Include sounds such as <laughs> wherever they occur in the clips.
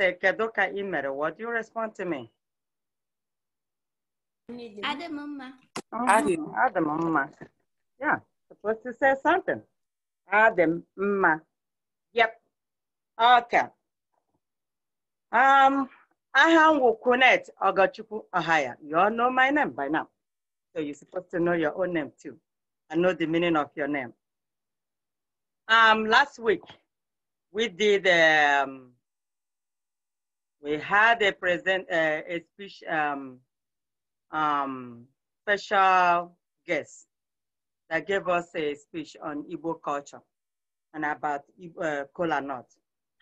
say Kadoka Imere, what do you respond to me? Adamumma. Oh, Adam, Mama. Yeah, supposed to say something. Mama. Yep. Okay. Um, Aham Wukunet Ogachuku Ohaya. You all know my name by now. So you're supposed to know your own name too and know the meaning of your name. Um, last week, we did um, we had a present uh, a speech um, um, special guest that gave us a speech on Igbo culture and about uh, cola nut.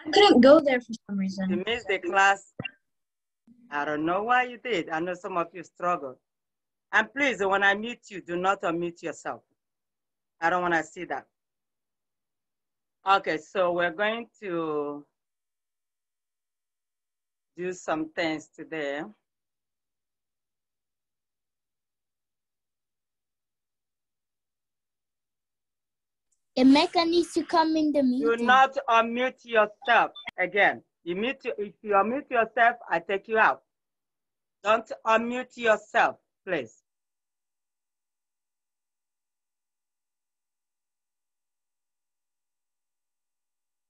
I couldn't go there for some reason. You missed the class. I don't know why you did. I know some of you struggled. And please, when I mute you, do not unmute yourself. I don't want to see that. Okay, so we're going to do some things today. Emeka needs to come in the meeting. Do not unmute yourself again. You mute, if you unmute yourself, I take you out. Don't unmute yourself, please.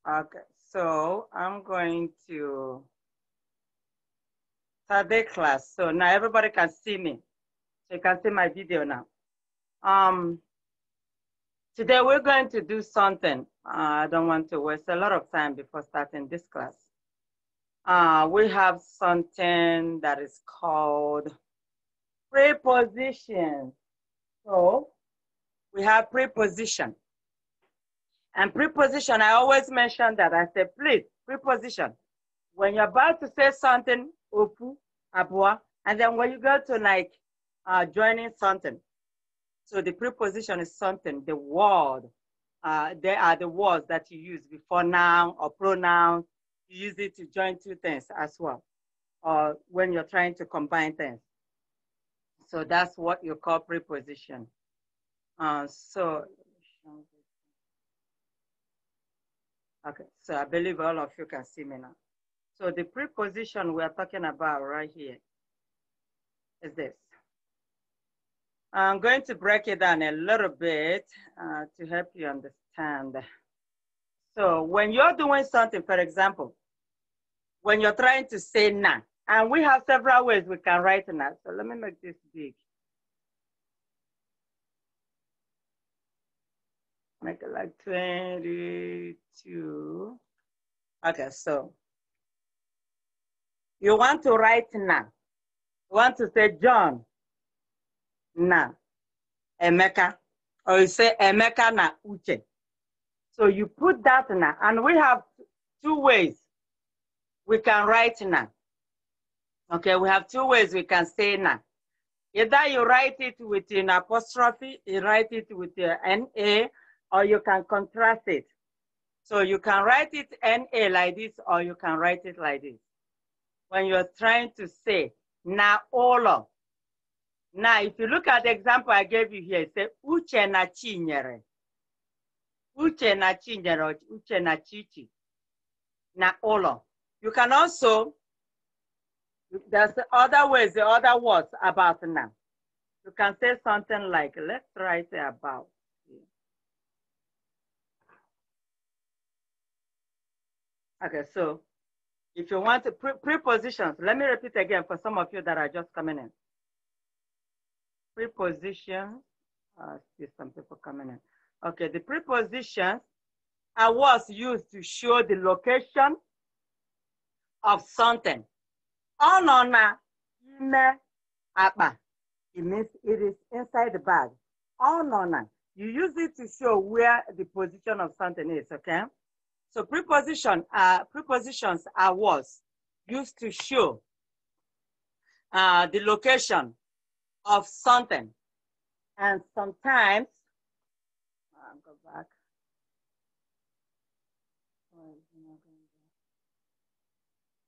Okay, so I'm going to Saturday class. So now everybody can see me. So you can see my video now. Um, today we're going to do something. Uh, I don't want to waste a lot of time before starting this class. Uh, we have something that is called preposition. So we have preposition. And preposition, I always mention that. I say, please, preposition. When you're about to say something, Opu, Abua, and then when you go to like uh, joining something, so the preposition is something, the word, uh, they are the words that you use before noun or pronoun. You use it to join two things as well, or when you're trying to combine things. So that's what you call preposition. Uh, so, okay, so I believe all of you can see me now. So the preposition we are talking about right here is this. I'm going to break it down a little bit uh, to help you understand. So when you're doing something, for example, when you're trying to say na, and we have several ways we can write na. So let me make this big. Make it like 22. Okay, so you want to write now. You want to say John na Emeka, or you say Emeka na Uche. So you put that na, and we have two ways we can write na. Okay, we have two ways we can say na. Either you write it with an apostrophe, you write it with an NA, or you can contrast it. So you can write it NA like this, or you can write it like this when you're trying to say na ụlọ. Now, if you look at the example I gave you here, say uche na chinyere. Uche na chinyere, uche na chichi, na ụlọ. You can also, there's other ways, the other words about now. You can say something like, let's write about. Okay, so if you want pre prepositions, let me repeat again for some of you that are just coming in. Prepositions, I uh, see some people coming in. Okay, the prepositions are words used to show the location of something. Onona ime apa. It means it is inside the bag. Onona. You use it to show where the position of something is, okay? So preposition uh, prepositions are words used to show uh, the location of something. And sometimes, I'll go back.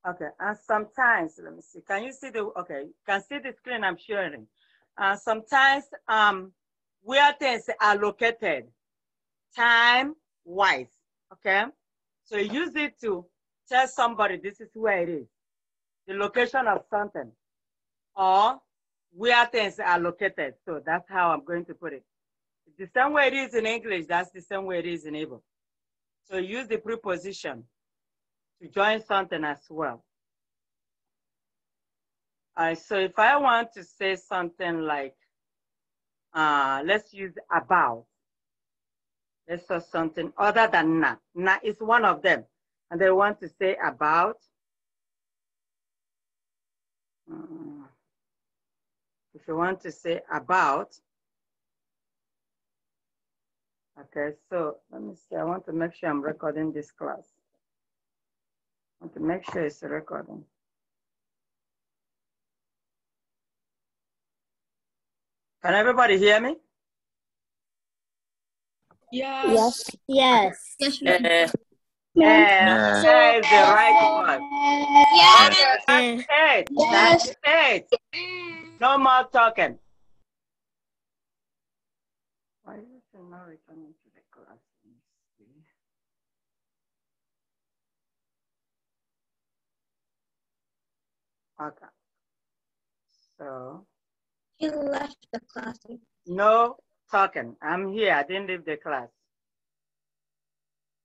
Okay, and sometimes, let me see, can you see the, okay, you can see the screen I'm sharing. Uh, sometimes um, where things are located, time-wise, okay? So use it to tell somebody this is where it is, the location of something, or where things are located. So that's how I'm going to put it. the same way it is in English, that's the same way it is in able. So use the preposition to join something as well. Alright, so if I want to say something like, uh, let's use about. Let's saw something other than na. Na is one of them. And they want to say about. Um, if you want to say about. Okay, so let me see. I want to make sure I'm recording this class. I want to make sure it's recording. Can everybody hear me? Yes. Yes. Yes. Eh. Yes. Yes. That is the right one. Yes. Eh. That's it. That's it. No more talking. Why is it not returning to the class? Okay. So. He left the classroom. No talking. I'm here. I didn't leave the class.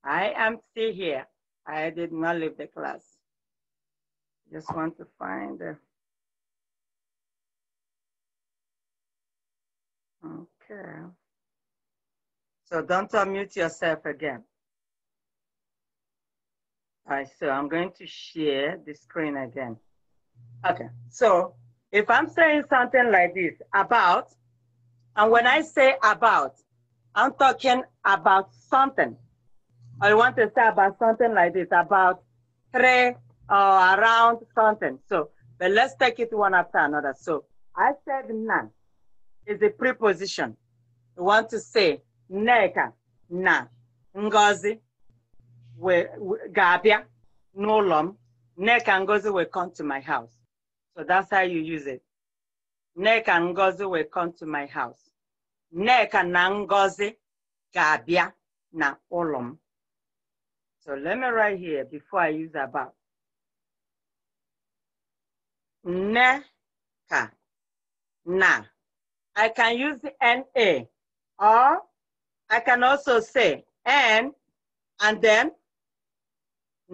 I am still here. I did not leave the class. Just want to find. Okay. So don't unmute yourself again. All right, so I'm going to share the screen again. Okay, so if I'm saying something like this about and when I say about, I'm talking about something. I want to say about something like this, about three or around something. So, but let's take it one after another. So, I said none is a preposition. I want to say neka, na, ngozi, we, we, gabia, nolom, neka ngozi will come to my house. So that's how you use it. Neka ngozi will come to my house. Nneka na Ngozi ga-abịa na ụlọ m. So let me write here before I use about. Nneka na. I can use NA or I can also say N and then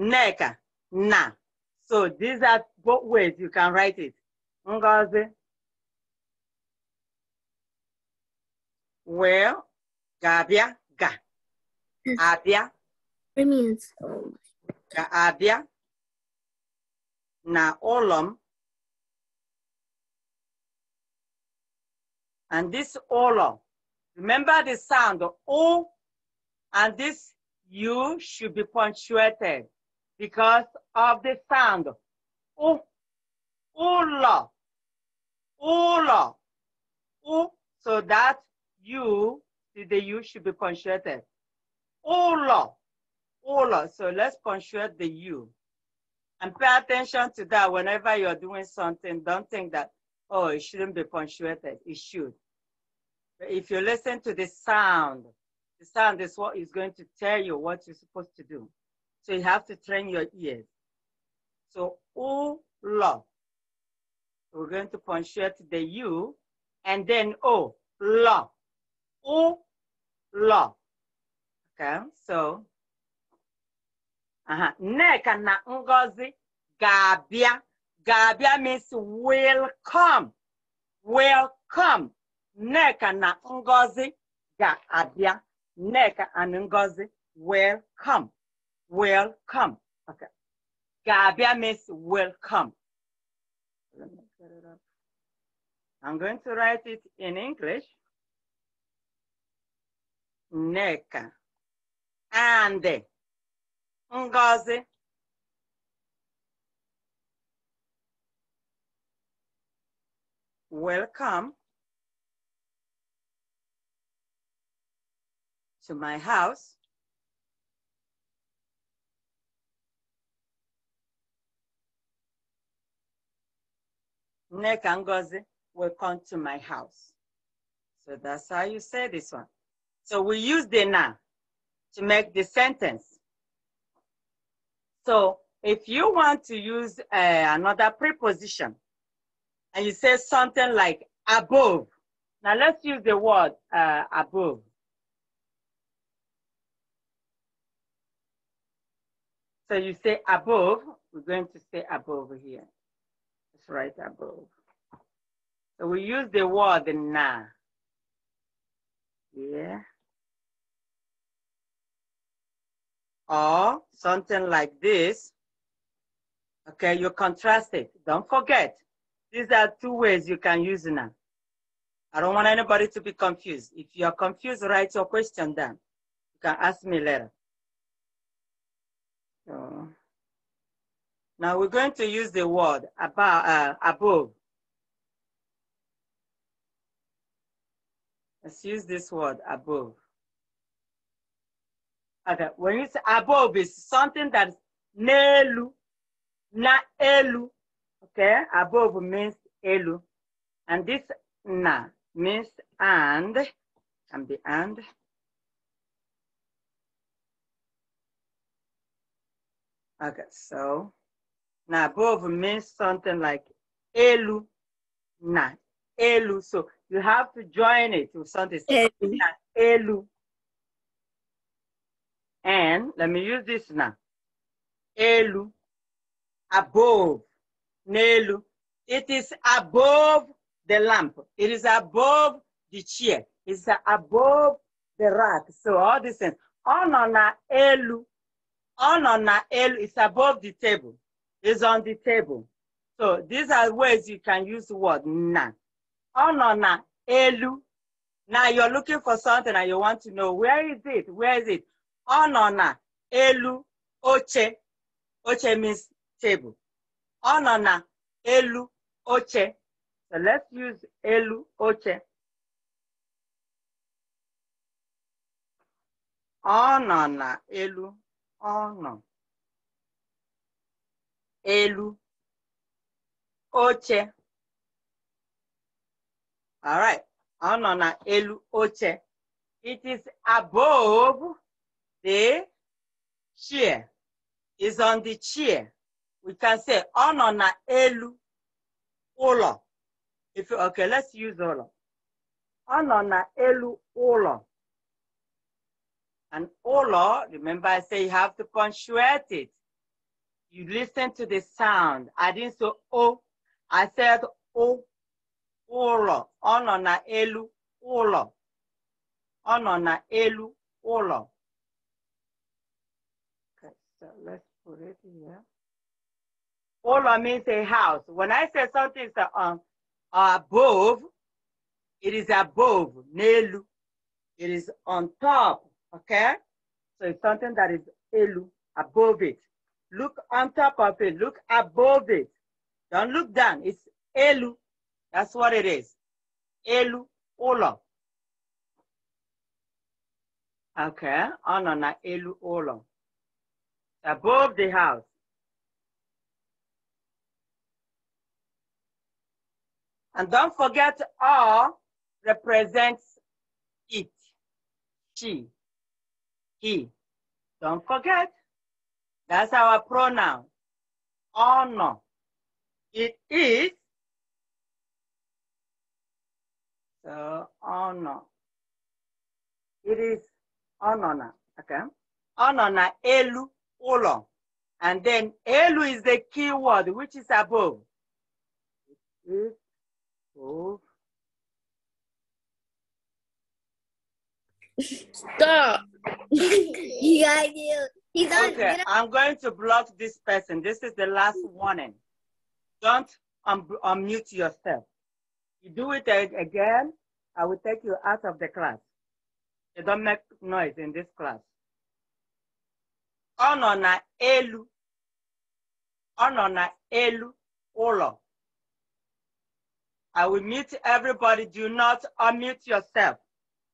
Nneka na. So these are both ways you can write it. Ngozi Well, Gabia ga. Hmm. Avia. It means. na Naolom. And this olom. Remember the sound O and this U should be punctuated because of the sound. O, ola, ola, o. So that U the U should be punctuated. Ola, ola. So let's punctuate the U. And pay attention to that whenever you're doing something. Don't think that, oh, it shouldn't be punctuated. It should. But if you listen to the sound, the sound is what is going to tell you what you're supposed to do. So you have to train your ears. So ola. We're going to punctuate the U and then oh, la o lo. Okay, so uh-huh. Neka na Ngozi gabia. Gabia means will come. Will come. Neka na Ngozi gabia. Neka Nneka and Ngozi will come. Will come. Okay. Gabia means will come. Let me get it up. I'm going to write it in English. Neka And Ngozi. Welcome to my house. Neka Ngozi, welcome to my house. So that's how you say this one. So we use the na to make the sentence. So if you want to use uh, another preposition and you say something like above, now let's use the word uh, above. So you say above, we're going to say above here. It's right above. So we use the word na. Yeah. or something like this, okay, you contrast it. Don't forget, these are two ways you can use now. I don't want anybody to be confused. If you're confused, write your question down. You can ask me later. So, now we're going to use the word above. Uh, above. Let's use this word above. Okay, when it's above, it's something that's nelu, na elu. Okay, above means elu. And this na means and, and the and. Okay, so now above means something like elu, na, elu. So you have to join it with something elu. elu. And let me use this now. Elu, above. Nelu, it is above the lamp. It is above the chair. It's above the rack. So all these things. On on elu, on on elu is above the table. It's on the table. So these are ways you can use the word na. On elu. Now you're looking for something and you want to know where is it? Where is it? ọ nọ na elu oche oche means table ọ nọ na elu oche so let's use elu oche ọ nọ na elu ọ nọ elu oche all right ọ nọ na elu oche it is above the chair is on the chair. We can say on oh, nọ na elu ụlọ. If you, okay, let's use ụlọ. On oh, nọ na elu ụlọ. And ụlọ, remember I say you have to punctuate it. You listen to the sound. I didn't say o. I said o. Ụlọ. on oh, nọ na elu ụlọ. on nọ na elu ụlọ. So let's put it here. Ola means a house. When I say something is um, above, it is above, nelu. It is on top, okay? So it's something that is elu, above it. Look on top of it, look above it. Don't look down, it's elu. That's what it is. Elu, ola. Okay, anana elu ola above the house. And don't forget R represents it, she, he. Don't forget, that's our pronoun, honor. It is, so honor. It is honor, okay? Honor elu colon. And then Elu is the key word, which is above. Stop. <laughs> yeah, you. He's okay, I'm going to block this person. This is the last warning. Don't un unmute yourself. You do it again, I will take you out of the class. You don't make noise in this class ọ nọ na elu ọ nọ na elu ụlọ I will mute everybody. Do not unmute yourself.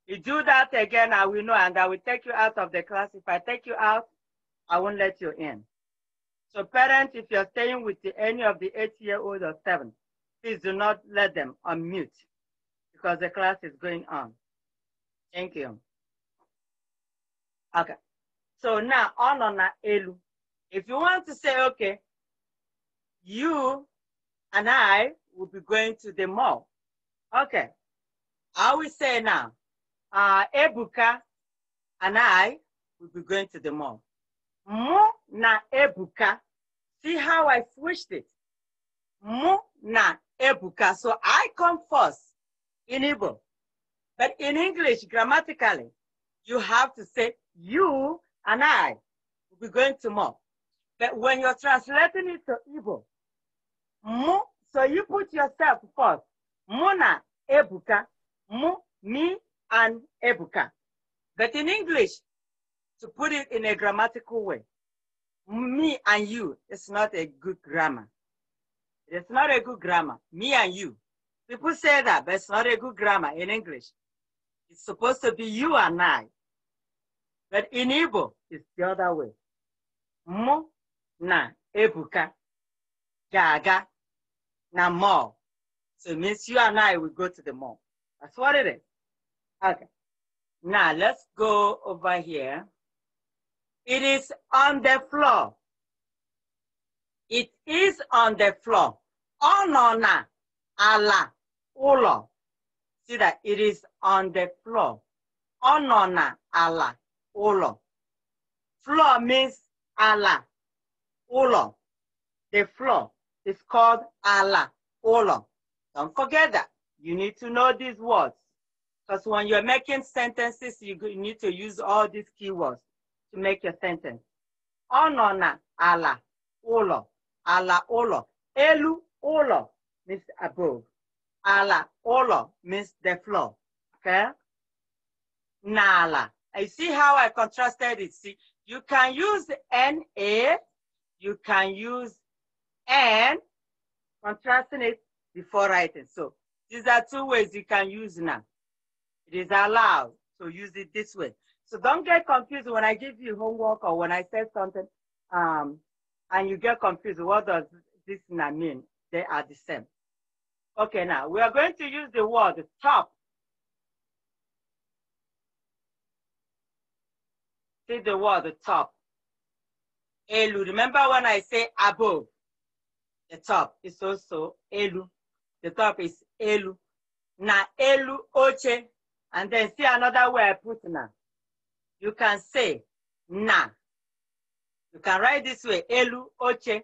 You do that again, I will know, and I will take you out of the class. If I take you out, I won't let you in. So parents, if you're staying with the, any of the eight-year-old or seven, please do not let them unmute because the class is going on. Thank you. Okay. So now on on elu. If you want to say, okay, you and I will be going to the mall. Okay. I will say now, uh, Ebuka and I will be going to the mall. Mu na Ebuka. See how I switched it. Mu na Ebuka. So I come first in Igbo. But in English, grammatically, you have to say you and I will be going to Mo. But when you're translating it to Igbo, mu, so you put yourself first. Muna Ebuka, mu, me, and Ebuka. But in English, to put it in a grammatical way, me and you is not a good grammar. It's not a good grammar. Me and you. People say that, but it's not a good grammar in English. It's supposed to be you and I. But in Igbo, is the other way. Mụ na Ebuka ga-aga na mall. So it means you and I will go to the mall. That's what it is. Okay. Now let's go over here. It is on the floor. It is on the floor. Onona ala ulo. See that it is on the floor. Onona ala ulo. Floor means Allah, Olam. The floor is called Allah, Olam. Don't forget that. You need to know these words. Because when you're making sentences, you need to use all these keywords to make your sentence. Onona, Allah, Olam. Allah, Olam. Elu, Olam means above. Allah, Olam means the floor. Okay? Nala. You see how I contrasted it? See, you can use NA, you can use N, contrasting it before writing. So these are two ways you can use now. It is allowed, to use it this way. So don't get confused when I give you homework or when I say something um, and you get confused. What does this now mean? They are the same. Okay, now we are going to use the word top Say the word the top. Elu. Remember when I say above? The top is also Elu. The top is Elu. Na Elu Oche. And then see another way I put na. You can say na. You can write this way Elu Oche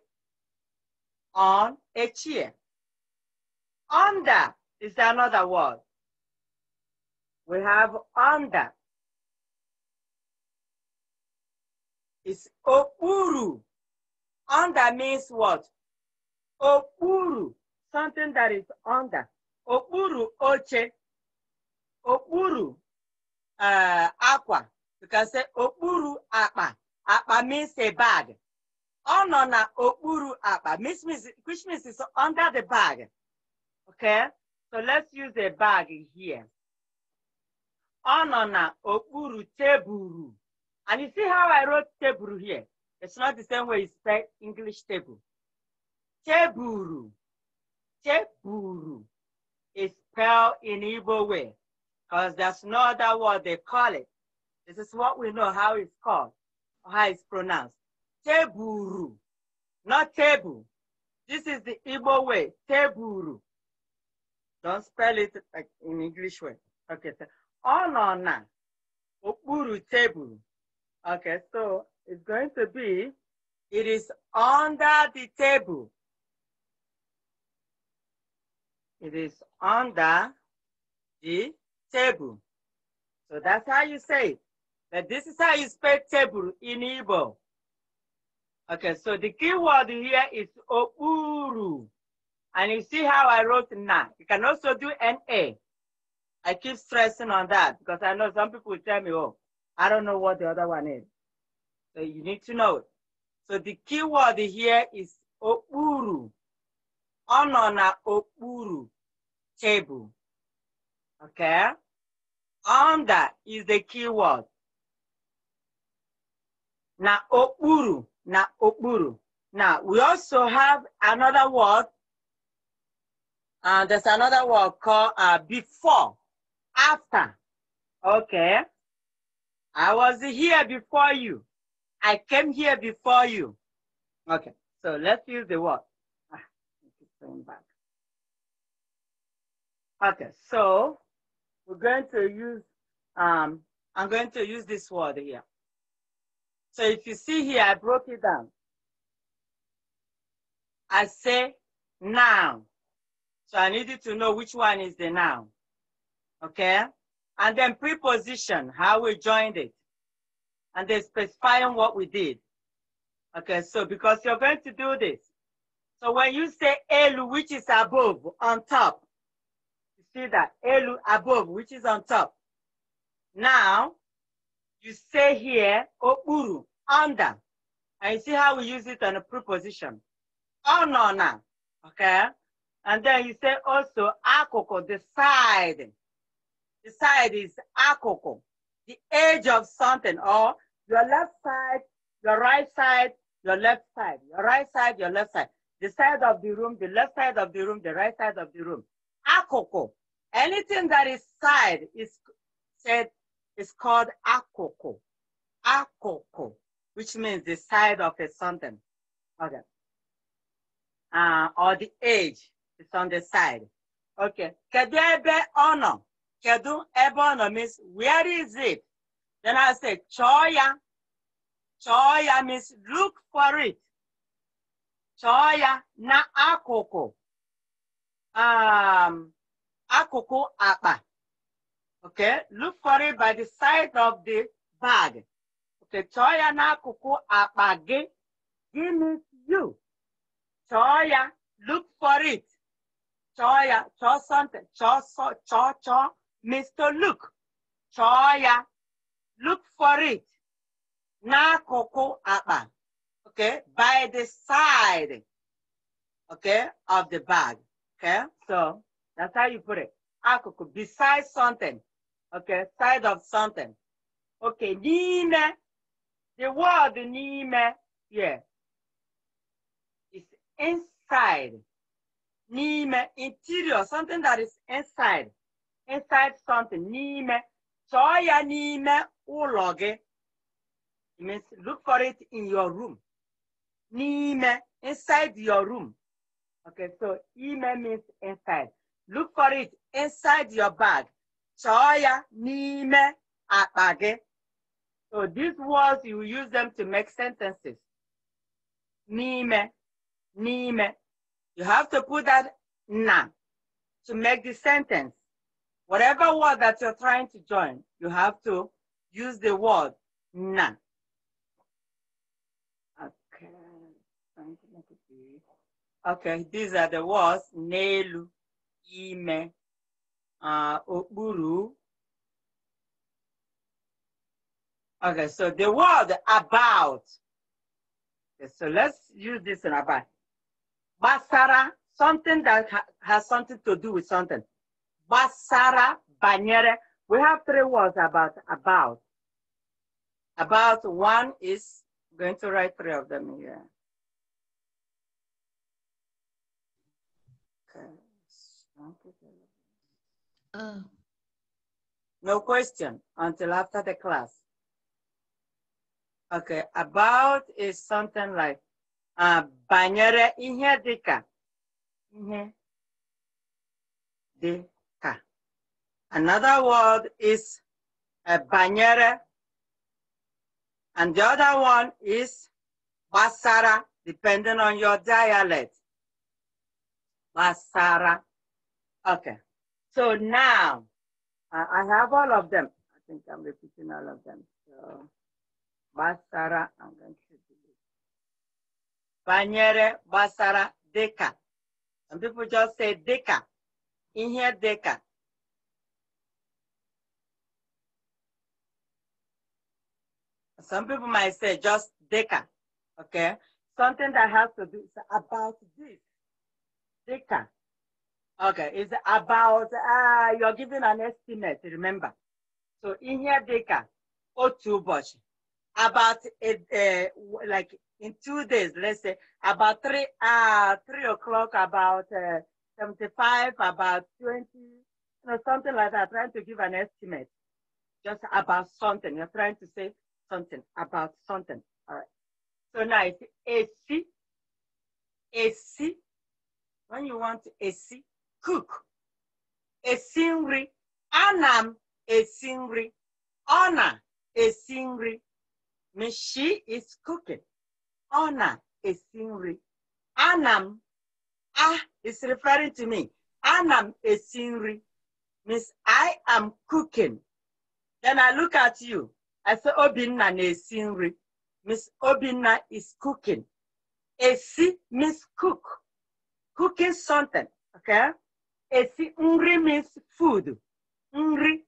on a chair. Under is another word. We have under. is okpuru. Under means what? Okpuru, something that is under. Okpuru oche. Okpuru akwa, uh, aqua. You can say okpuru akpa. Akpa means a bag. Ono na okpuru akpa, means, means, which means it's under the bag. Okay? So let's use a bag here. Ono na okpuru teburu. And you see how I wrote table here? It's not the same way it's spelled English table. Teburu. Teburu is spelled in evil way because that's not that what they call it. This is what we know how it's called, or how it's pronounced. Teburu, not table. This is the Igbo way, teburu. Don't spell it like in English way. Okay, so on "oburu na, teburu. Okay, so it's going to be, it is under the table. It is under the table. So that's how you say that But this is how you spell table in Igbo. Okay, so the key word here is opuru. And you see how I wrote na. You can also do na. I keep stressing on that because I know some people tell me, oh, I don't know what the other one is. So you need to know it. So the key word here is okpuru. Ono na okpuru table. Okay? Under is the key word. Na okpuru, na okpuru. Now we also have another word. And uh, there's another word called uh, before, after. Okay? I was here before you. I came here before you. Okay, so let's use the word. Ah, okay, so we're going to use, um, I'm going to use this word here. So if you see here, I broke it down. I say now. So I need you to know which one is the noun. Okay? And then preposition, how we joined it. And then specifying what we did. Okay, so because you're going to do this. So when you say elu, which is above, on top, you see that, elu, above, which is on top. Now, you say here, okpuru, under. And you see how we use it on a preposition. Onona, oh, okay? And then you say also, akoko, the side the side is akoko, the edge of something, or your left side, your right side, your left side, your right side, your left side, the side of the room, the left side of the room, the right side of the room. Akoko. Anything that is side is said is called akoko. Akoko, which means the side of a something. Okay. Uh, or the edge is on the side. Okay. Kedebe ono. Kedu ebe means where is it? Then I say choya. Choya means look for it. Choya na akoko. Um, akoko apa. Okay, look for it by the side of the bag. Okay, choya na akoko apa ge. Give me you. Choya, look for it. Choya, cho something, cho so, Mr. Luke, chọọ Look for it. Na koko akpa. Okay, by the side. Okay, of the bag. Okay, so that's how you put it. Akoko beside something. Okay, side of something. Okay, n'ime. The word n'ime It's inside. Nime, interior, something that is inside inside something n'ime chọọ ya n'ime ụlọ means look for it in your room n'ime inside your room okay so ime means inside look for it inside your bag chọọ ya n'ime akpa so these words you use them to make sentences n'ime n'ime you have to put that na to make the sentence Whatever word that you're trying to join, you have to use the word na. Okay. Okay, these are the words nelu, ime, uh, Okay, so the word about. Okay, so let's use this in about. Basara, something that ha has something to do with something. Basara Banyere. We have three words about about. About one is going to write three of them here. Uh. No question until after the class. Okay, about is something like uh, banyere ihe dịka ihe dị Another word is a uh, banyere. And the other one is basara, depending on your dialect. Basara. Okay. So now, I have all of them. I think I'm repeating all of them. So, basara, I'm going to delete. Banyere, basara, deka. Some people just say deka. In here, deka. Some people might say just Deca, okay? Something that has to do about this. Deca. Okay, it's about, uh, you're giving an estimate, remember. So in here, Deca, or two bush. About, a, uh, eh, eh, like in two days, let's say, about three, uh, three o'clock, about uh, 75, about 20, you know, something like that, trying to give an estimate, just about something. You're trying to say something, about something. All right. So now it's AC, AC. When you want AC, cook. A singri, Anam a singri, Ona a singri. Means she is cooking. Ona a singri, Anam. Ah is referring to me. Anam a singri, Means I am cooking. Then I look at you. I said, Obinna na-esi nri. Miss Obinna is cooking. Esi means cook. Cooking something, okay? Esi nri means food. Nri.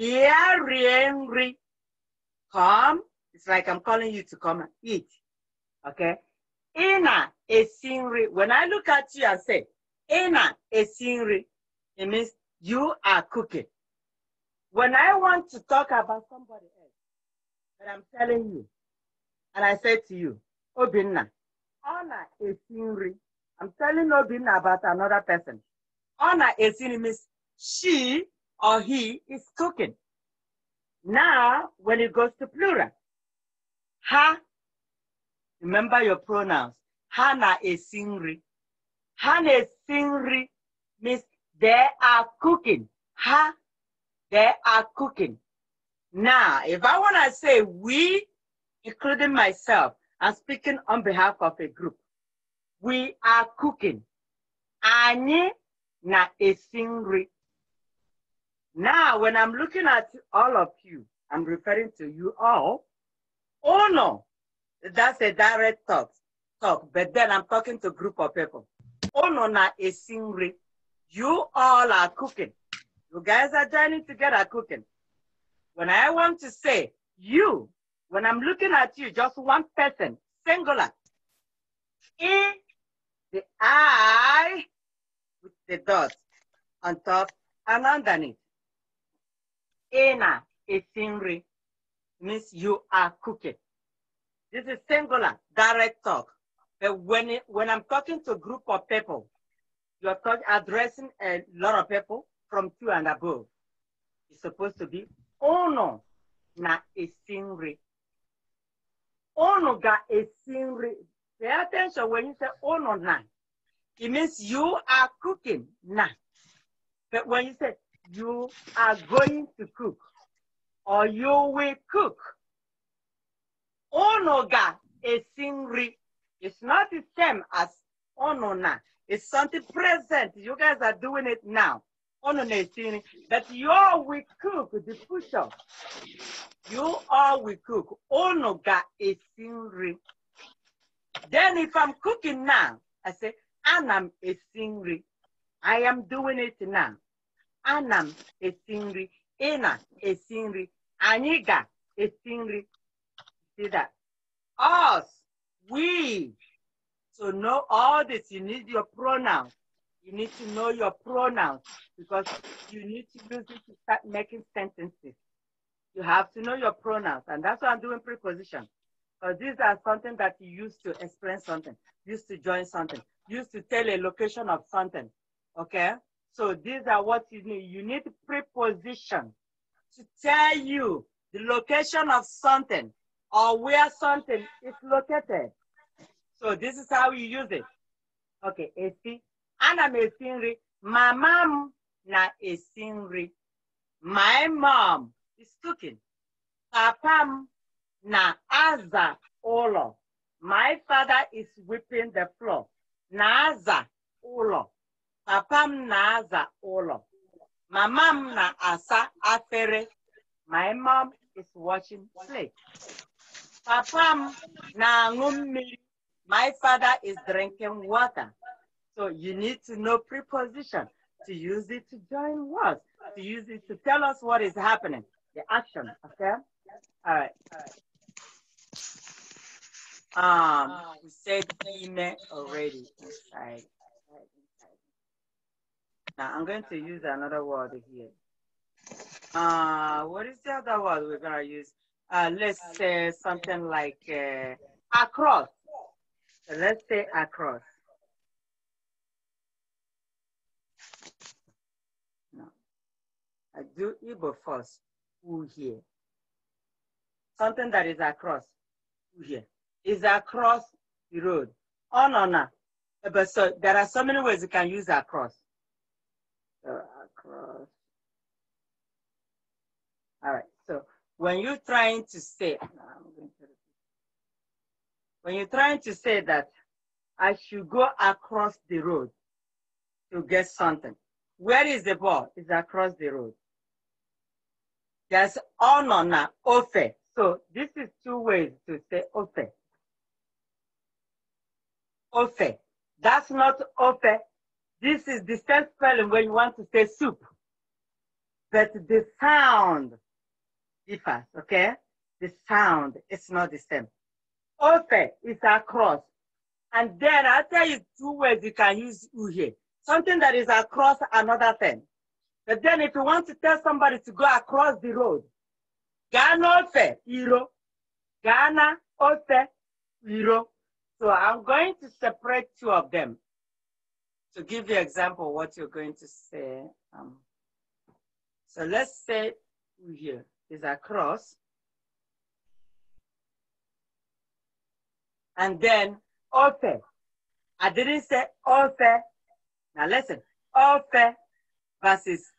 Bịa rie nri. Come. It's like I'm calling you to come and eat, okay? Ina esi nri. When I look at you, I say, Ina esi nri. It means you are cooking. When I want to talk about somebody else, but I'm telling you, and I said to you, Obinna, Honor is Sinri. I'm telling Obinna about another person. Honor is Sinri means she or he is cooking. Now, when it goes to plural, ha, remember your pronouns. Hana is Sinri. Hana Sinri means they are cooking. Ha, they are cooking. Now, if I want to say we, including myself, I'm speaking on behalf of a group. We are cooking. Anyị na esi Now, when I'm looking at all of you, I'm referring to you all. Oh no, that's a direct talk, talk. But then I'm talking to a group of people. Oh no, na a nri. You all are cooking. You guys are joining together cooking. When I want to say you, when I'm looking at you, just one person, singular, in the I with the dot on top and underneath. Ena esinri means you are cooking. This is singular, direct talk. But when, it, when I'm talking to a group of people, you're talking, addressing a lot of people from two and above. It's supposed to be unu na-esi nri unu ga-esi nri pay attention when you say unu na it means you are cooking na but when you say you are going to cook or you will cook unu ga-esi nri it's not the same as unu na it's something present you guys are doing it now annesini that you will cook the future. You all will cook. Ono ga esinri. Then if I'm cooking now, I say, anam esinri. I am doing it now. Anam esinri. Ina esinri. Aniga esinri. See that? Us, we. So know all this. You need your pronouns. You need to know your pronouns because you need to use it to start making sentences. You have to know your pronouns, and that's why I'm doing preposition. Because these are something that you use to explain something, used to join something, used to tell a location of something. Okay? So these are what you need. You need preposition to tell you the location of something or where something is located. So this is how you use it. Okay, AC, ana m esi nri mama m na-esi nri my mom is cooking papa m na-aza ụlọ my father is whipping the floor na-aza ụlọ papa m na-aza ụlọ mama m na-asa afere my mom is washing plate papa m na-aṅụ mmiri my father is drinking water so you need to know preposition to use it to join words, to use it to tell us what is happening, the action, okay? All right. Um, we said email already inside. Now I'm going to use another word here. Uh, what is the other word we're gonna use? Uh, let's say something like uh, across. let's say across. I do Igbo first, here? Something that is across, Who here? Is across the road. Oh, no, no. Eh, but so there are so many ways you can use across. So across. All right. So when you're trying to say, when you're trying to say that I should go across the road to get something, where is the ball? It's across the road. There's onona, ofe. So this is two ways to say ofe. Ofe. That's not ofe. This is the same spelling when you want to say soup. But the sound differs, okay? The sound is not the same. Ofe is across. And then I tell you two ways you can use uhe. Something that is across another thing. But then if you want to tell somebody to go across the road, Ghana Ofe, Iro. Ghana Ofe, Iro. So I'm going to separate two of them to give you example what you're going to say. Um, so let's say here is across. And then Ofe. I didn't say Ofe. Now listen, Ofe versus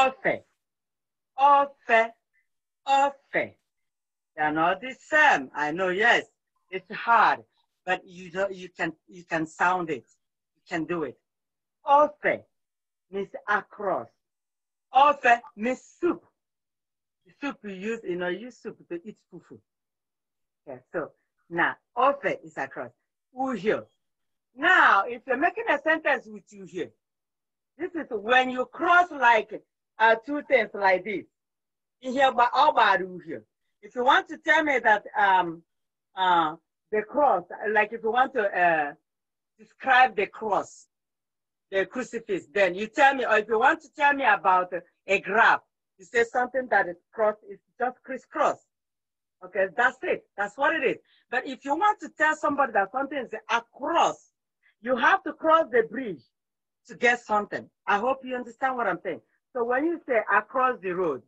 ọ̀fẹ́ ọ̀fẹ́ ọ̀fẹ́ they are not the same I know yes it's hard but you do, you can you can sound it you can do it ọ̀fẹ́ means across ọ̀fẹ́ means soup the soup you use you know you use soup to eat fufu Okay. so now ọ̀fẹ́ is across uhio now if you're making a sentence with you here this is when you cross like are uh, two things like this. Here, but If you want to tell me that um, uh, the cross, like if you want to uh, describe the cross, the crucifix, then you tell me, or if you want to tell me about a graph, you say something that is cross, it's just crisscross. Okay, that's it. That's what it is. But if you want to tell somebody that something is across, you have to cross the bridge to get something. I hope you understand what I'm saying. So when you say across the road,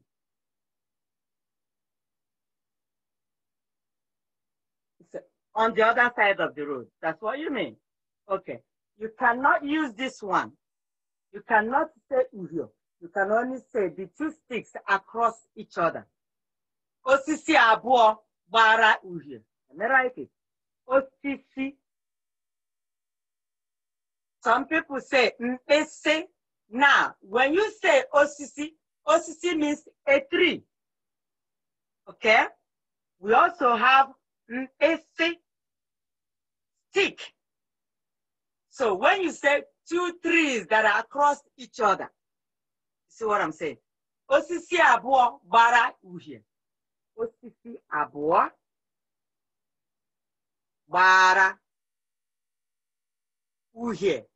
on the other side of the road. That's what you mean. Okay. You cannot use this one. You cannot say uhio. You can only say the two sticks across each other. Osisi abuo bara uhio. Am I right? Osisi. Some people say say. Now, when you say OCC, OCC means a tree. Okay? We also have a stick. So when you say two trees that are across each other, see what I'm saying? OCC abụọ bara uhie. OCC abụọ bara uhie.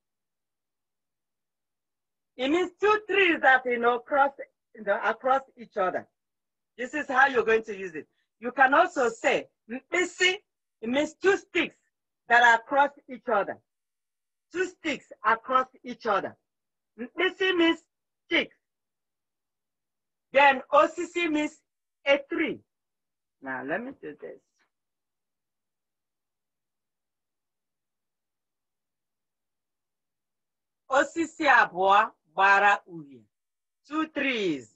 It means two trees that you know cross you know, across each other. This is how you're going to use it. You can also say "missy." It means two sticks that are across each other. Two sticks across each other. "Missy" means sticks. Then "occ" means a tree. Now let me do this. Osisi abụọ Two trees.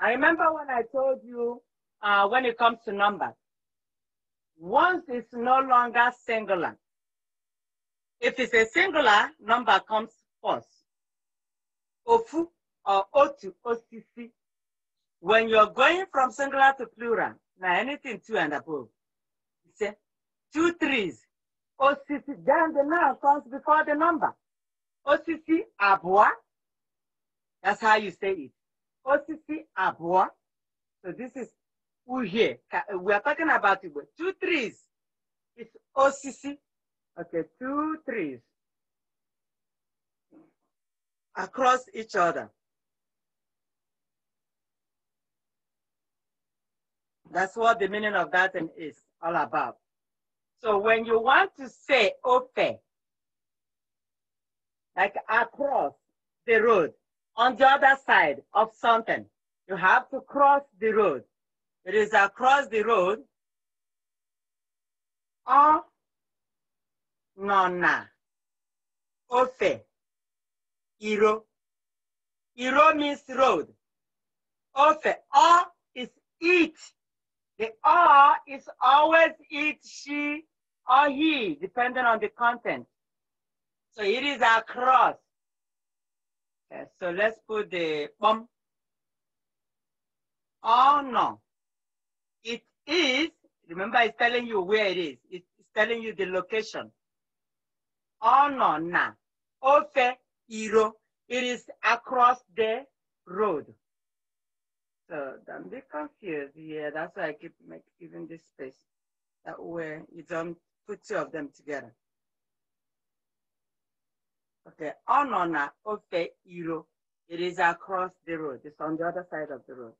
I remember when I told you uh, when it comes to numbers, once it's no longer singular. If it's a singular, number comes first. Ofu or otu, osisi. When you're going from singular to plural, now anything two and above, you say trees. Osisi, then the noun comes before the number. Osisi, abua, that's how you say it. Osisi abua. So this is uhie. We are talking about two trees. It's osisi. Okay, two trees across each other. That's what the meaning of that thing is all about. So when you want to say ope, like across the road, on the other side of something. You have to cross the road. It is across the road Oh, nọ na ofe iro. Iro means road. Ofe, ọ is it. The ọ is always it, she, or he, depending on the content. So it is across so let's put the bum. Oh no. It is, remember it's telling you where it is. It's telling you the location. Oh no, na. Ofe, iro. It is across the road. So I'm a bit confused. Yeah, that's why I keep making, this space. That way you don't put two of them together. Okay, Onona ah, Ofe Iro. It is across the road. It's on the other side of the road.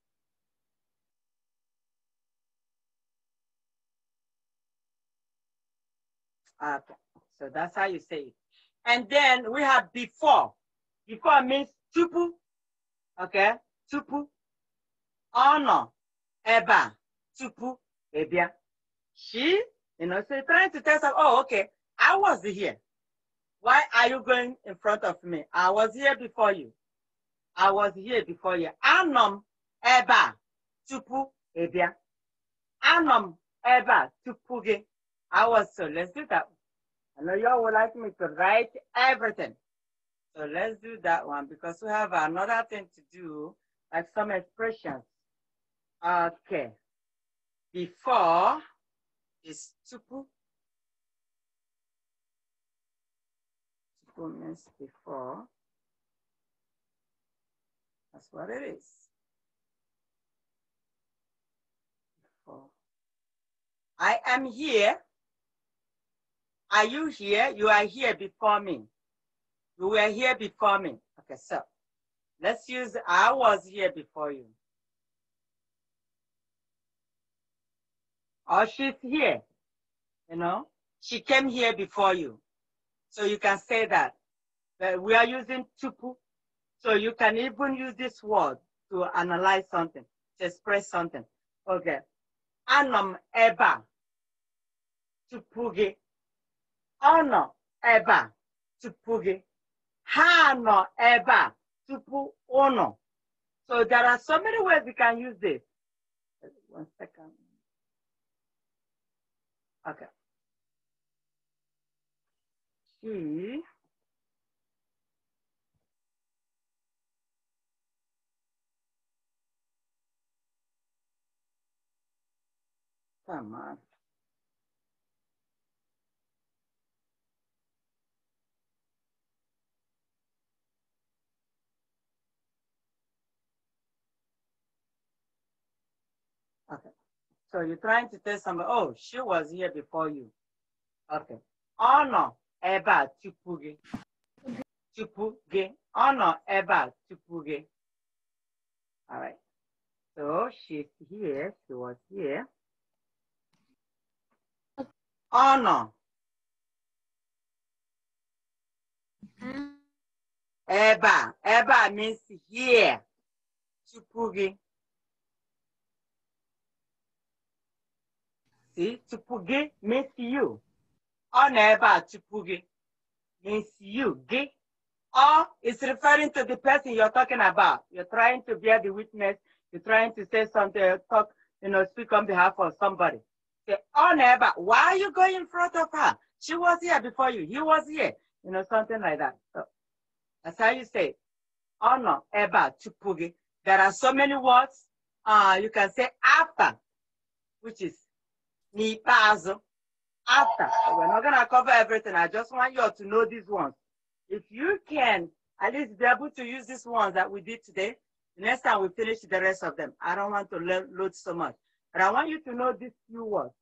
Okay, so that's how you say it. And then we have before. Before means tupu. Okay, tupu. Ono eba tupu ebia. She, you know, so trying to tell us, oh, okay, I was here. Why are you going in front of me? I was here before you. I was here before you. Anọ m ebe a tupu ị bịa. Anọ m to put tupu I was so let's do that. I know y'all would like me to write everything. So let's do that one because we have another thing to do, like some expressions. Okay. Before is tupu. comments before. That's what it is. Before. I am here. Are you here? You are here before me. You were here before me. Okay, so let's use I was here before you. Or oh, she's here. You know, she came here before you. So you can say that. we are using tupu. So you can even use this word to analyze something, to express something. Okay. Anam eba tupugi, gị. eba tupugi, ebe eba tupu ono. So there are so many ways you can use this. One second. Okay. Mm-hmm. come on Okay. So you're trying to tell somebody, oh, she was here before you. Okay. Honor oh, ebe a tupu gị tupu gị ọ nọ ebe a tupu gị all right so she's here she was here ọ nọ ebe a ebe a means here tupu gị see tupu gị means you ọ nọ ebe a tupu gị means you gị or it's referring to the person you're talking about you're trying to bear the witness you're trying to say something uh, talk you know speak on behalf of somebody say ọ nọ ebe a why are you going in front of her she was here before you he was here you know something like that so that's how you say ọ nọ ebe a tupu gị there are so many words uh, you can say after which is n'ikpeazụ after. So we're not going to cover everything. I just want you all to know these ones. If you can at least be able to use these ones that we did today, next time we finish the rest of them. I don't want to load so much. But I want you to know these few words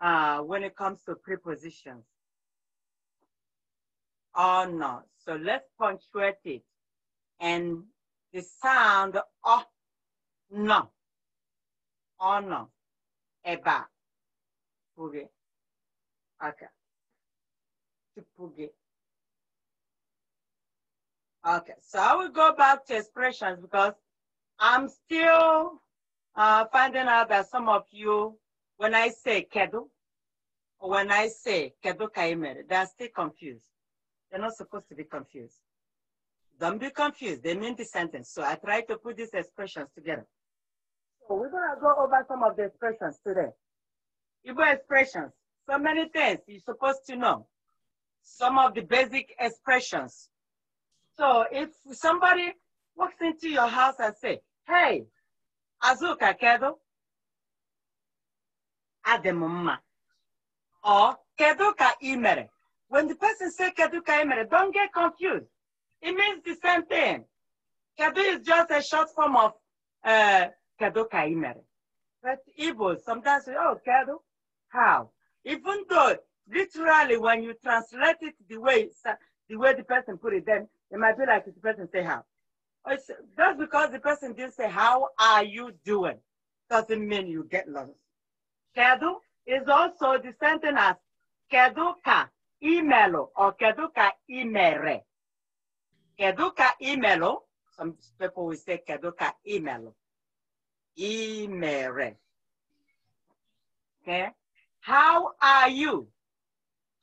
uh, when it comes to prepositions. Or not. So let's punctuate it. And the sound oh no. Oh no. Eba. Okay. Okay. Chipuge. Okay, so I will go back to expressions because I'm still uh, finding out that some of you, when I say kedu, or when I say kedu kaimere, they're still confused. They're not supposed to be confused. Don't be confused. They mean the sentence. So I try to put these expressions together. So we're going to go over some of the expressions today. Igbo expressions. So many things you're supposed to know. Some of the basic expressions. So if somebody walks into your house and say, hey, Azuka Kedo, Ademumma, or Kedo Ka Imere. When the person say Kedo Ka Imere, don't get confused. It means the same thing. Kado is just a short form of uh, ka Kaimere. But evil sometimes say, oh, kado," how? Even though literally when you translate it the way the way the person put it, then it might be like the person say how. Oh, it's just because the person didn't say how are you doing doesn't mean you get lost. Kedu is also the sentence as kedu ka imelo or kedu ka imere. Kedu ka imelo. Some people will say kedu ka imelo. Imere. Okay. How are you?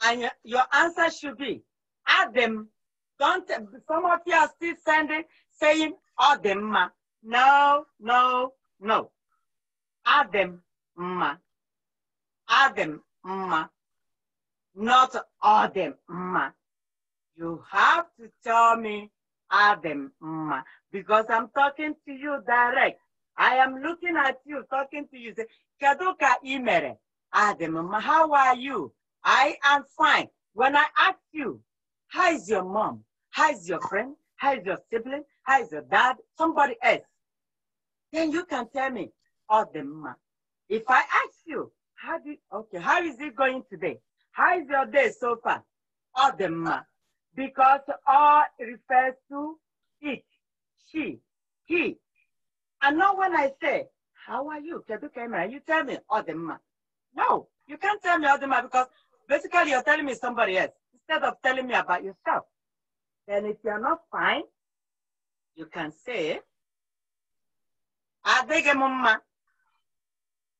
And your answer should be, Adam, don't, some of you are still sending, saying, Adam, ma. No, no, no. Adam, ma. Adam, ma. Not Adam, ma. You have to tell me Adam, ma, because I'm talking to you direct. I am looking at you, talking to you. Say, kaduka imere? ask the Mama, how are you? I am fine. When I ask you, how is your mom? How is your friend? How is your sibling? How is your dad? Somebody else. Then you can tell me, all the mama. If I ask you, how do, okay, how is it going today? How is your day so far? All the mama. Because all refers to it, she, he. And now when I say, how are you? You tell me, all the mama. No, you can't tell me man because basically you're telling me somebody else instead of telling me about yourself. Then if you're not fine, you can say, Adege mama.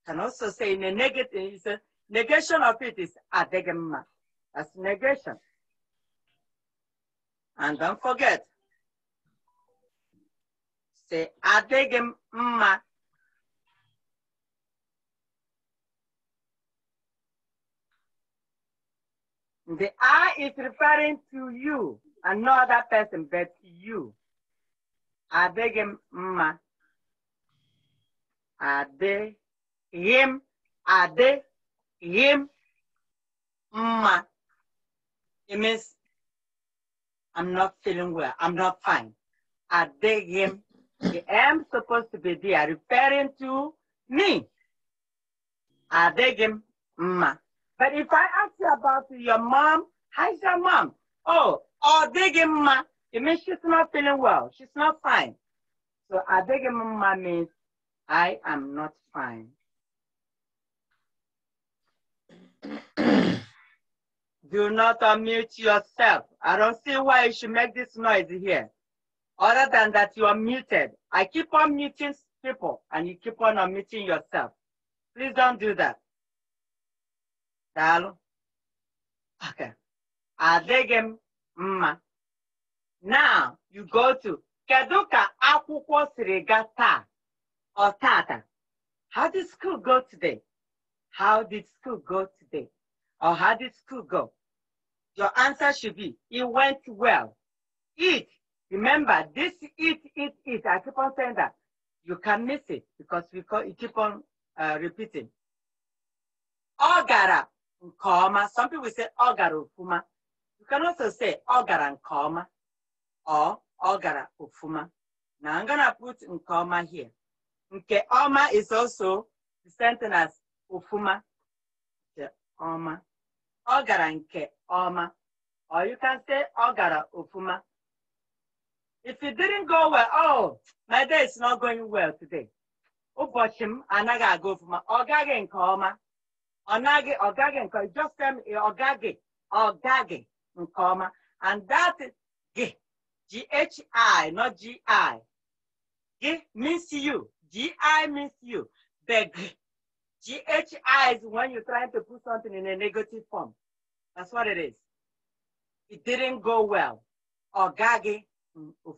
Can also say in a negative, a negation of it is Adege mama. That's negation. And don't forget, say Adege mama. The I is referring to you, another person, but you. Are ma? Are they him? Are him ma? It means I'm not feeling well. I'm not fine. Are him? The M supposed to be there, referring to me. Are ma? But if I ask you about your mom, how's your mom? Oh, oh, digging ma. It means she's not feeling well. She's not fine. So adegim ma means I am not fine. Do not unmute yourself. I don't see why you should make this noise here. Other than that, you are muted. I keep on muting people and you keep on unmuting yourself. Please don't do that daalụ okay adịghị mma now you go to Kaduka, ka akwụkwọ or tata how did school go today how did school go today or how did school go your answer should be it went well it remember this it it it i keep on saying that you can miss it because we call, you keep on uh, repeating ọ gara nke ọma some people say ọ gara ofuma you can also say ọ gara nke ọma ọ ọ gara ofuma na I'm gonna put nke ọma here nke ọma is also the sentence as ofuma nke ọma ọ gara nke ọma or you can say ọ gara ofuma if it didn't go well oh my day is not going well today ụbọchị m anaghị aga ofuma ọ gaghị nke ọma ọnaghị ogage, gaghị nke just tell me ogage, gaghị ọ gaghị and that G H I, not G I. G means you gi means you beg. ghi is when you're trying to put something in a negative form that's what it is it didn't go well Ogage,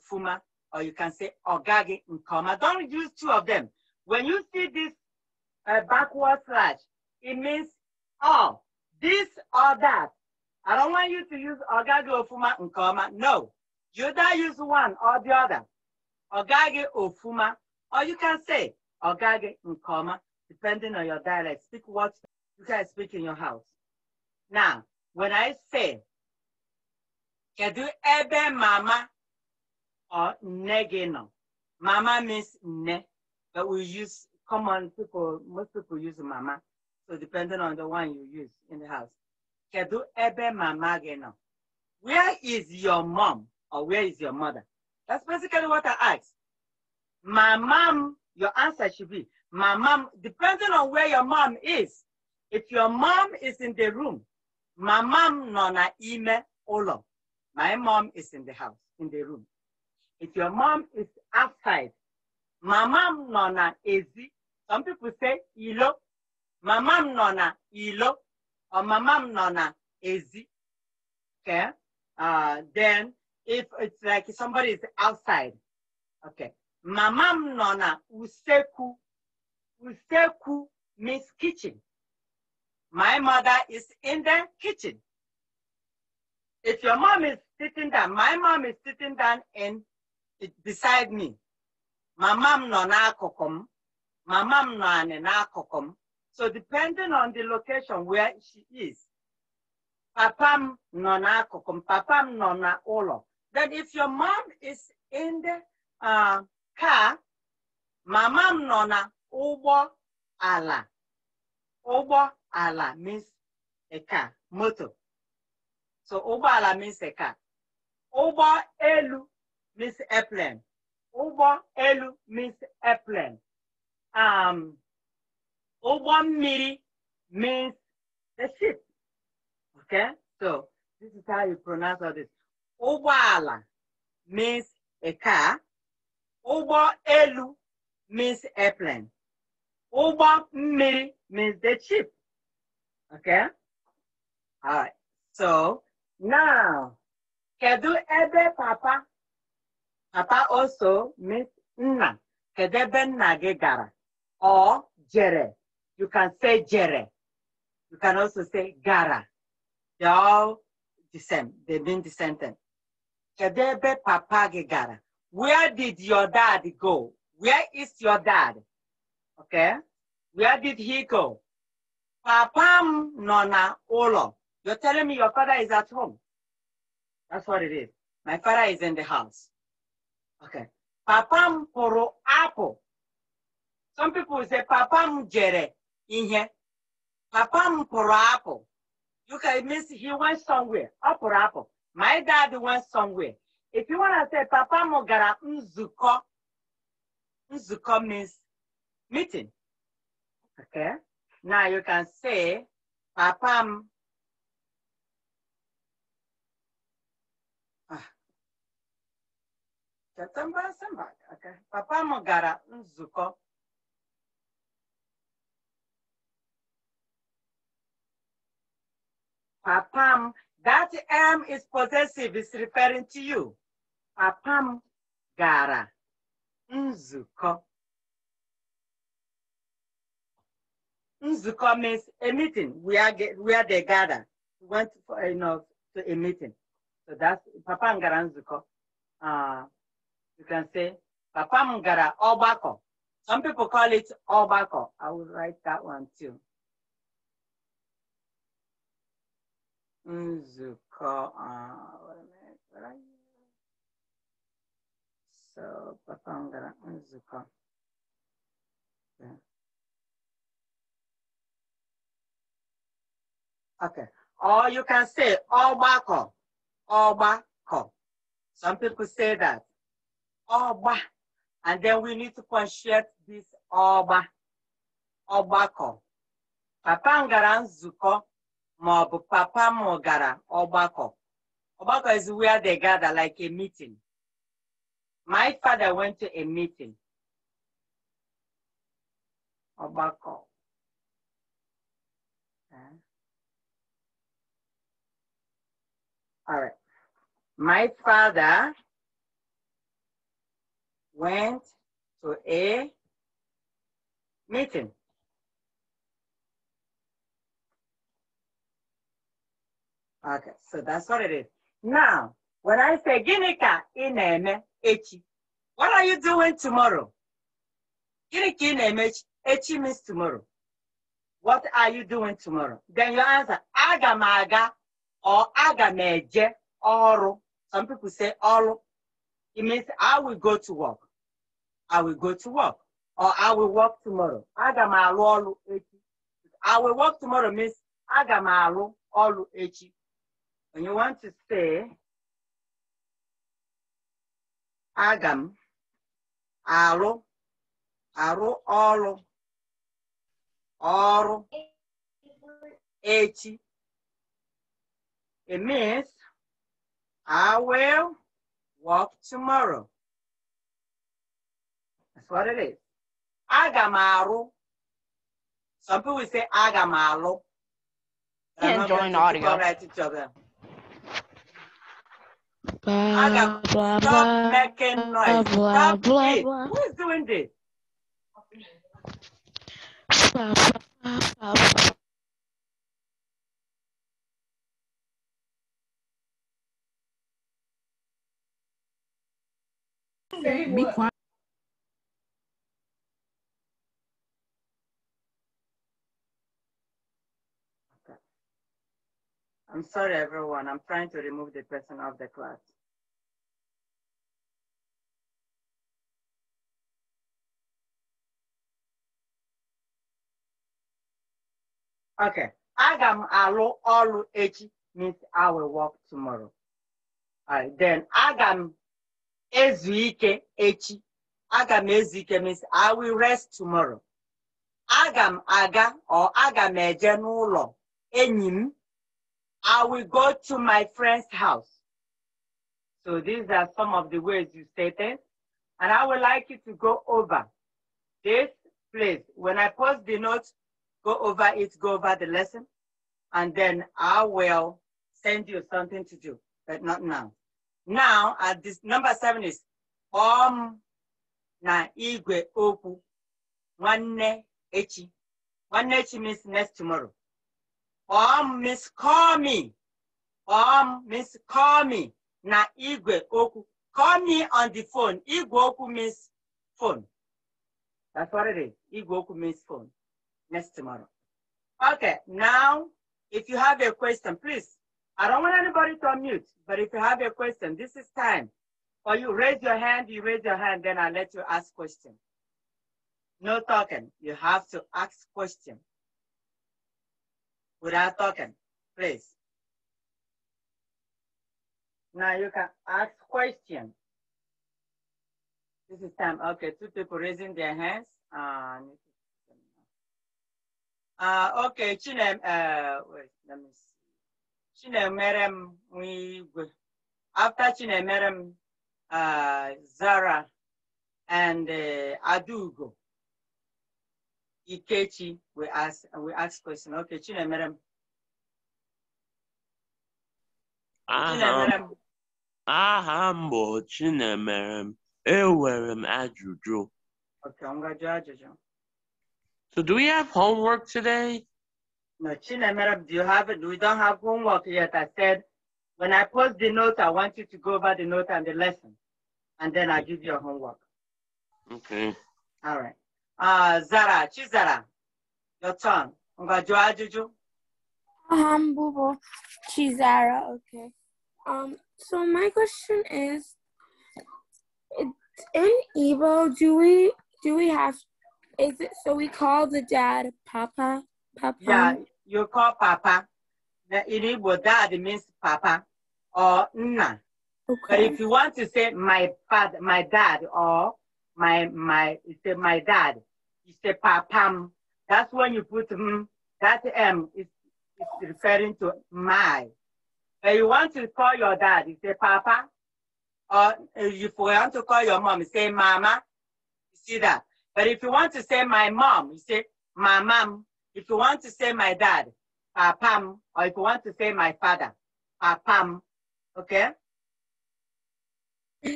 gaghị or you can say ogage, nke do don't use two of them when you see this uh, backward slash it means all, this or that. I don't want you to use ogage ofuma nkoma. No, you either use one or the other. Ogage ofuma, or you can say ogage nkoma, depending on your dialect. Speak what you guys speak in your house. Now, when I say kedu ebe mama or negeno, mama means ne, but we use common people. Most people use mama. So depending on the one you use in the house. Kedu ebe mama gị Where is your mom or where is your mother? That's basically what I asked. My mom, your answer should be, my mom, depending on where your mom is. If your mom is in the room, my mom nona ime olo. My mom is in the house, in the room. If your mom is outside, my mom nona na ezi. Some people say ilo, mama m nọ na ilo or my m nọ na ezi okay uh, then if it's like somebody is outside okay mama m nọ na useku useku means kitchen my mother is in the kitchen if your mom is sitting down my mom is sitting down and it beside me mama m nọ n'akụkụ m mama m nọ anị n'akụkụ m so depending on the location where she is, papam nona kokum, papam nona olo. Then if your mom is in the uh, car, mamam nona ubo ala. Ubo ala means a car, motor. So ubo ala means a car. Ubo elu means airplane. Ubo elu means airplane. Um, Ụgbọ mmiri means the ship. Okay? So this is how you pronounce all this. Ụgbọala means a car. Ụgbọ elu means airplane. Ụgbọ mmiri means the ship. Okay? All right. So now, kedu ebe papa? Papa also means nna. Kedu ebe nna gị gara? Ọ jere. You can say Jere. You can also say Gara. They're all the same. They mean the same thing. Kedebe papa gegara. Where did your dad go? Where is your dad? Okay. Where did he go? Papa nona olo. You're telling me your father is at home. That's what it is. My father is in the house. Okay. Papam poro apo. Some people say papam jere. ihe papa m pụrụ apụ yuka means he went somewhere ọ pụrụ apụ my dad went somewhere if you wanna say papa m gara nzukọ nzukọ means meeting okay now you can say papa m ah. September, September, okay. Papa m gara nzukọ Papam, that M is possessive, it's referring to you. Papam gara nzuko. Nzuko means a meeting, we are the gather. We went for, you know, to a meeting. So that's Papam gara nzuko. Uh, you can say Papam gara obako. Some people call it obako. I will write that one too. is called, uh, wait a minute, where are you? So, Papangara is called, yeah. Okay. Or you can say Obako. Obako. Some people say that. Oba. And then we need to punctuate this Oba. Obako. Papa Ngaranzuko ma ọ bụ papa m gara ọgbakọ ọgbakọ is where they gather like a meeting my father went to a meeting ọgbakọ eh? All right. My father went to a meeting. Okay, so that's what it is. Now, when I say gịnị ka ị na-eme echi, what are you doing tomorrow? Gịnị ka ị na-eme echi? Echi means tomorrow. What are you doing tomorrow? Then you answer, aga m aga or aga m eje ọrụ. Some people say ọrụ. It means I will go to work. I will go to work. Or I will work tomorrow. Aga m alụ ọrụ echi. I will work tomorrow means aga m alụ ọrụ echi. when you want to say, "agam m arụ arụ ọrụ ọrụ echi it means I will walk tomorrow. That's what it is. Agamaru. Some people say agamalu. Can't join audio. Right each other. Blah, Adam, blah, stop blah, making noise. Blah, stop blah, it. Blah. Who is doing this? Blah, blah, blah, blah. Be quiet. I'm sorry, everyone. I'm trying to remove the person off the class. Okay. Agam m alụ ọrụ echi means I will work tomorrow. Alright, then agam m echi. agam m means I will rest tomorrow. Agam aga or agam m eje n'ụlọ I will go to my friend's house. So these are some of the words you stated. And I would like you to go over this place. When I post the notes, go over it, go over the lesson, and then I will send you something to do, but not now. Now, at this number seven is um na igwe oku nwanne echi. Nwanne echi means next tomorrow ọ Miss call me ọ Miss call me na igwe oku. call me on the phone igwe oku means phone that's what it is igwe oku means phone next tomorrow okay now if you have a question please I don't want anybody to unmute but if you have a question this is time or you raise your hand you raise your hand then i let you ask question no talking you have to ask question without talking, please. Now you can ask questions. This is time. Okay, two people raising their hands. uh, okay, Chinem, uh, wait, let me see. Chinemerem, we, after Chinemerem, uh, Zara and uh, Adugo. Ikechi we ask we ask question. Okay, Chinemerem. Chinemerem. Aham bo chine enwere Ewerem ajụjụ. Okay, I'm gonna judge So do we have homework today? No, Chinemerem, do you have it? We don't have homework yet. I said when I post the note, I want you to go over the note and the lesson, and then I give you a homework. Okay. All right. 아, 자라, 치자라. 요청. 뭔가 좋아주죠? Um, Bubo, Chizara, okay. Um, so my question is, in evil, do we do we have? Is it so we call the dad Papa? Papa. Yeah, you call Papa. In Igbo, dad means Papa or Nna. Okay. But if you want to say my father, my dad, or my my he said my dad. He a papam. That's when you put mm, that M is, is referring to my. If you want to call your dad, you say papa. Or if uh, you want to call your mom, you say mama. You see that? But if you want to say my mom, you say my mom. If you want to say my dad, papam. Or if you want to say my father, papam. Okay?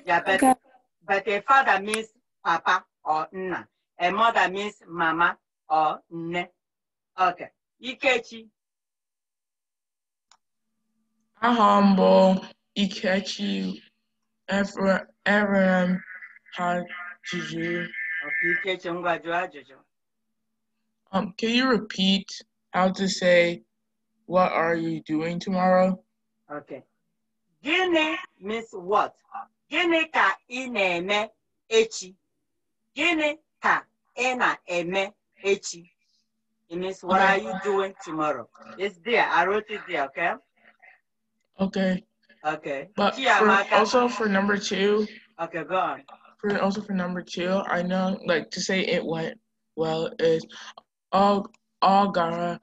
Yeah, but, okay. but a father means papa or nna. A mother means mama or nne. Okay. Ikechi. I mbụ Ikechi Evrem ha jụjụ. Okay, Ikechi ngwa jụọ Um, can you repeat how to say, what are you doing tomorrow? Okay. Gịnị means what? Gịnị ka i echi? Gịnị ka ị na-eme echi? It means what are you doing tomorrow? It's there. I wrote it there, okay? Okay. Okay. But for, also for number two. Okay, go on. For also for number two, I know like to say it went well is all all gara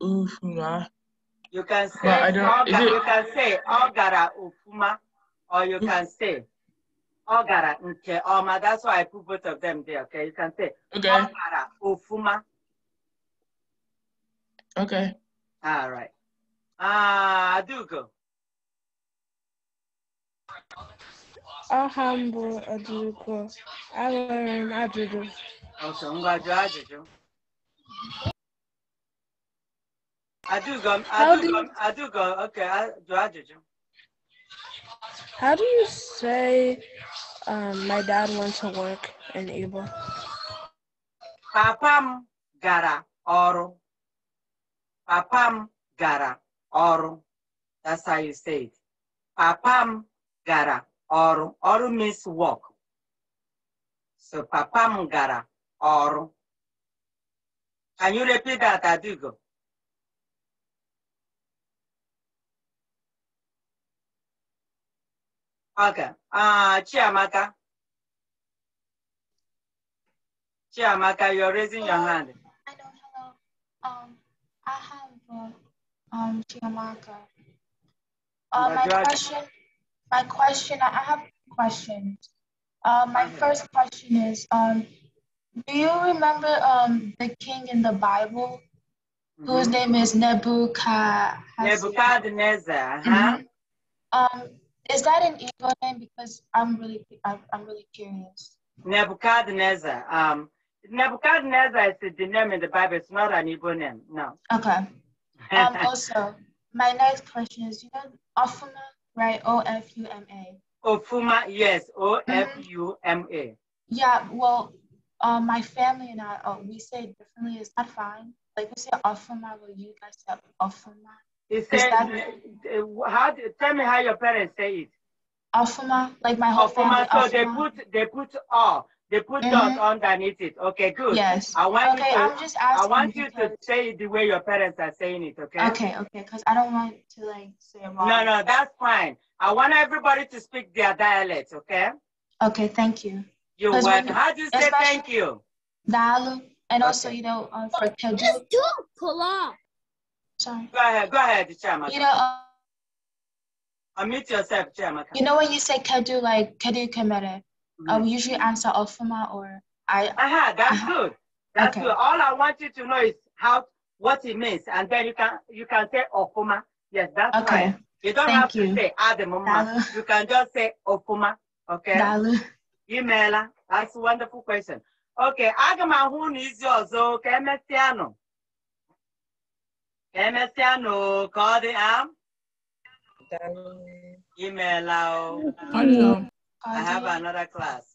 ufuma. You can say you can say all gara ufuma or you can say ọ gara nke ọma that's why I put both of them there okay you can say okay. ọ gara ofuma okay all right ah uh, Adugo aha m bụ Adugo enwere m ajụjụ ọsọ ngwa jụọ ajụjụ Adugo Adugo Adugo okay jụọ ajụjụ How do you say Um, my dad went to work in Igbo. Papam gara ọrụ. Papam gara ọrụ. That's how you say it. Papam gara ọrụ. Ọrụ means work. So papam gara ọrụ. Can you repeat that, Adigo? Okay. Uh, Chiamaka. Chiamaka, you're raising hello. your oh, hand. Hello, hello. Um, I have uh, um, Chiamaka. Uh, my question, my question, I have questions. Uh, my okay. first question is, um, do you remember um, the king in the Bible mm -hmm. whose mm-hmm. name is Nebuchadnezzar? Nebuchadnezzar, huh? Mm -hmm. um, is that an evil name? Because I'm really, I'm, really curious. Nebuchadnezzar. Um, Nebuchadnezzar is the name in the Bible. It's not an evil name. No. Okay. Um, <laughs> also, my next question is, you know, Ofuma, right? O F U M A. Ofuma, yes. O F U M A. Mm-hmm. Yeah. Well, uh, my family and I, uh, we say it differently. Is that fine? Like we say Ofuma, but you guys say Ofuma. It says, uh, how, tell me how your parents say it. Afuma, like my whole Afuma, family. So Afuma. they put they put all they put mm -hmm. dot underneath it. Okay, good. Yes. I want okay, you, to, I'm just asking I want you to say it the way your parents are saying it. Okay. Okay. Okay. Because I don't want to like say wrong. No, no, that's fine. I want everybody to speak their dialect. Okay. Okay. Thank you. You're welcome. How do you say thank you? Dalu, and okay. also you know um, for Kedu. Just do pull up. Sorry. Go ahead, go ahead, Chairman. You know, uh, unmute yourself, Chairman. You know when you say Kadu, like Kadu Kamere, mm-hmm. I will usually answer Ofuma or I. Aha, that's uh-huh. good. That's okay. good. All I want you to know is how what it means, and then you can you can say Ofuma. Yes, that's okay. Right. You don't Thank have you. to say Ademuma. You can just say Ofuma. Okay. Dalu. Imela. That's a wonderful question. Okay, aga m ahụ na izi ọzọ MSN call the arm. Email. I have another class.